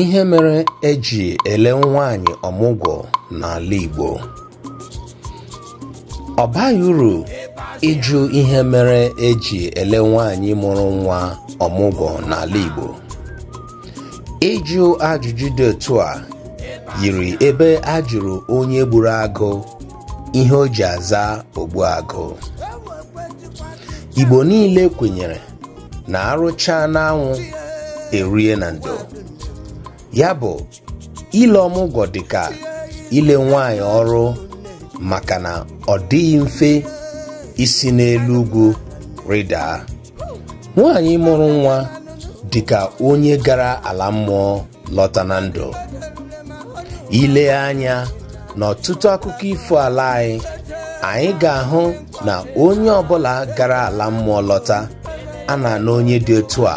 ihe mere eji ele nwaanyị ọmụgwọ n'ala Igbo ọ uru ịjụ ihe mere eji ele nwaanyị mụrụ nwa ọmụgwọ n'ala Igbo ịjụ ajụjụ dị otu a yiri ebe a jụrụ onye gburu agụ ihe o ji aza agụ. Igbo niile kwenyere na arụcha n'anwụ erie na ndo ya bụ ile ọmụgwọ dịka ile nwanyị ọrụ maka na ọ dịghị mfe isi n'elu ugwu rịda nwanyị mụrụ nwa dịka onye gara ala mmụọ lọta na ndụ ile anya n'ọtụtụ akụkọ ifo ala anyị anyị ga-ahụ na onye ọbụla gara ala mmụọ lọta a na onye dị otu a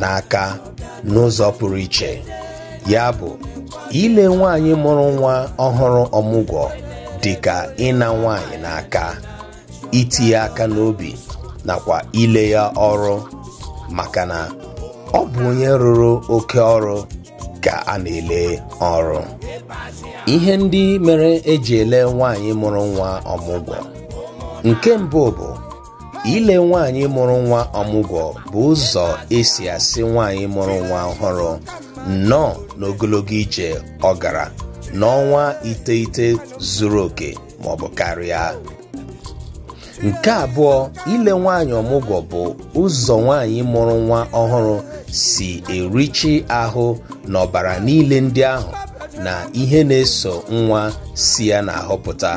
n'aka n'ụzọ pụrụ iche ya bụ ile nwaanyị mụrụ nwa ọhụrụ ọmụgwọ dị ka ịna nwaanyị n'aka itinye aka n'obi nakwa ile ya ọrụ maka na ọ bụ onye rụrụ oke ọrụ ka a ele ọrụ ihe ndị mere eji ele nwaanyị mụrụ nwa ọmụgwọ nke mbụ bụ ile nwaanyị mụrụ nwa ọmụgwọ bụ ụzọ esi asị nwaanyị mụrụ nwa ọhụrụ nnọọ n'ogologo ije ọ gara n'ọnwa iteghete zuru oke ma ọ bụ karịa nke abụọ ile nwaanyị ọmụgwọ bụ ụzọ nwaanyị mụrụ nwa ọhụrụ si erichi ahụ n'ọbara niile ndị ahụ na ihe na-eso nwa si ya na-ahụpụta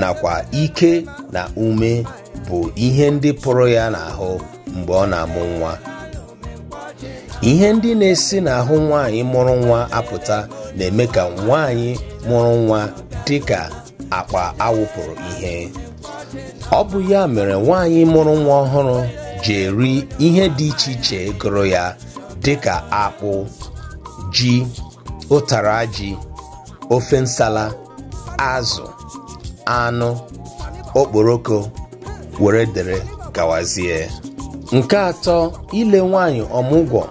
nakwa ike na ume bụ ihe ndị pụrụ ya n'ahụ mgbe ọ na-amụ nwa ihe ndị na-esi n'ahụ nwaanyị mụrụ nwa apụta na-eme ka nwaanyị mụrụ nwa dị ka akpa awụpụrụ ihe ọ bụ ya mere nwaanyị mụrụ nwa ọhụrụ ji eri ihe dị iche iche gụrụ ya dị ka akpụ ji ụtara ji ofe nsala azụ anụ okporoko were dere gawazie nke atọ ile nwanyị ọmụgwọ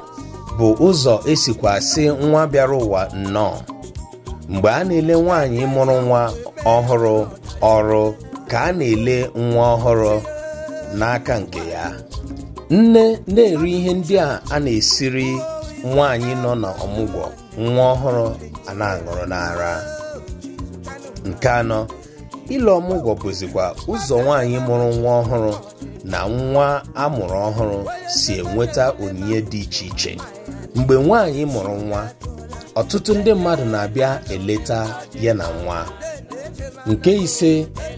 bụ ụzọ esikwa sị nwa bịara ụwa nnọọ mgbe a na-ele nwaanyị mụrụ nwa ọhụrụ ọrụ ka a na-ele nwa ọhụrụ n'aka nke ya nne na-eri ihe ndị a a na-esiri nwaanyị nọ n'ọmụgwọ nwa ọhụrụ a aṅụrụ n'ara nke anọ ile ọmụgwọ bụzikwa ụzọ nwaanyị mụrụ nwa ọhụrụ na nwa amụrụ ọhụrụ si enweta onyinye dị iche iche mgbe nwaanyị mụrụ nwa ọtụtụ ndị mmadụ na-abịa eleta ya na nwa nke ise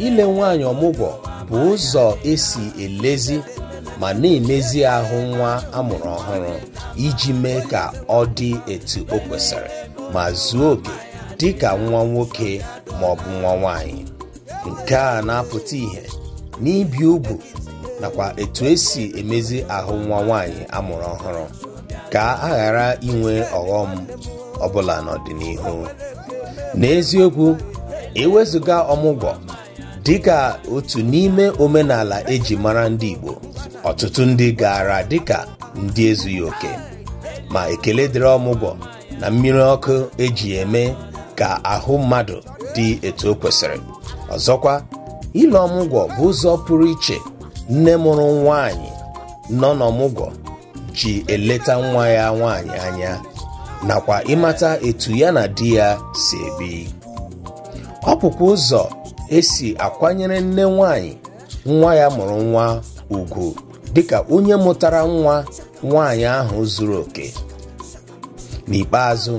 ile nwaanyị ọmụgwọ bụ ụzọ esi elezi ma na-emezi ahụ nwa amụrụ ọhụrụ iji mee ka ọ dị etu o kwesịrị ma zuo oke dị ka nwa nwoke ma ọ bụ nwa nwaanyị nke a na-apụta ihe n'ibi ugwu nakwa etu esi emezi ahụ nwa nwanyị amụrụ ọhụrụ ka a ghara inwe ọghọm ọbụla n'ọdịnihu n'eziokwu ewezụga ọmụgwọ dịka otu n'ime omenala eji mara ndị Igbo ọtụtụ ndị gara dịka ndị ezughị oke ma ekele dịrị ọmụgwọ na mmiri ọkụ eji eme ka ahụ mmadụ dị etu o kwesịrị ọzọkwa ile ọmụgwọ bụ ụzọ pụrụ iche nne mụrụ nwaanyị nọ n'ọmụgwọ ji eleta nwa ya nwaanyị anya nakwa ịmata etu ya na di ya si ebi ọ ụzọ esi akwanyere nne nwaanyị nwa ya mụrụ nwa ugwu dịka onye mụtara nwa nwaanyị ahụ zuru oke n'ikpeazụ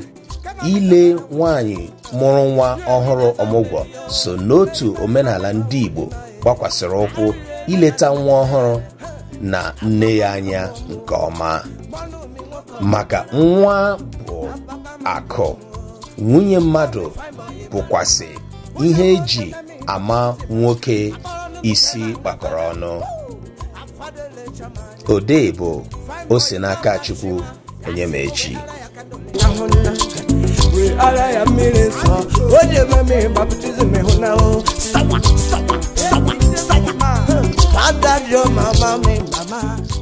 ile nwanyị mụrụ nwa ọhụrụ ọmụgwọ so n'otu omenala ndị Igbo gbakwasịrị ụkwụ ileta nwa ọhụrụ na nne ya anya nke ọma maka nwa bụ akụ nwunye mmadụ bụkwasị ihe eji ama nwoke isi gbakọrọ ọnụ odee bụ o n'aka Chukwu echi. we ara ya mmiri nsọ o me eme mmiri baptizim ịhụna o sawa sawa sawa sawa fada your mama mi mama